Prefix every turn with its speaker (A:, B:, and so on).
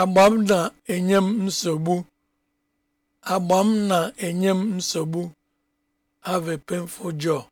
A: agba m na-enye m nsogbu agba m na-enye m nsogbu have painful jaw